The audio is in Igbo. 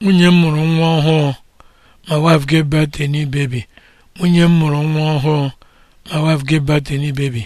nwunye m mụrụ nwa ọhụụ ma wife gave birth baby